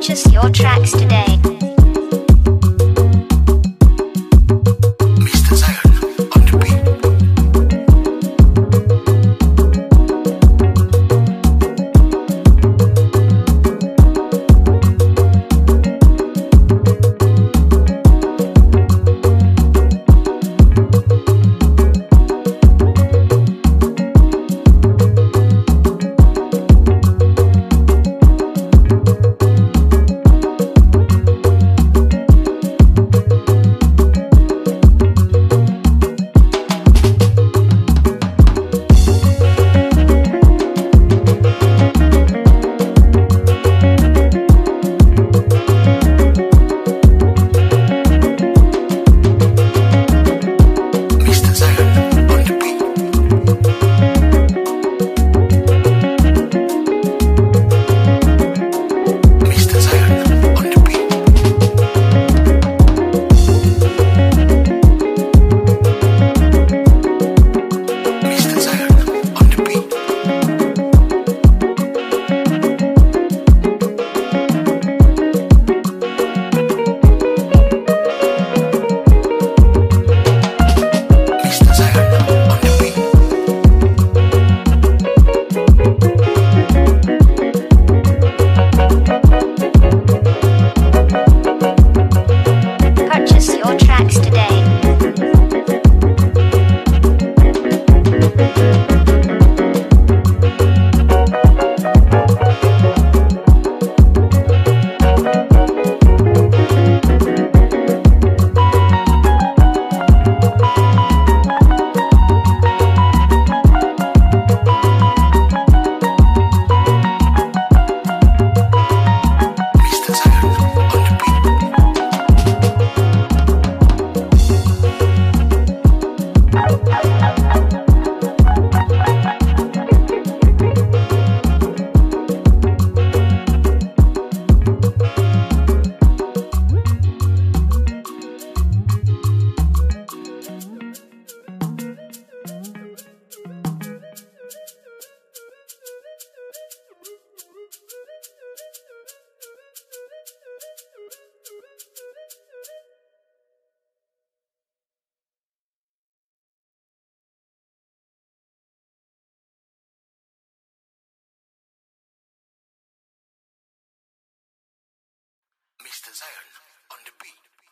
purchase your tracks today. Zion on the beat.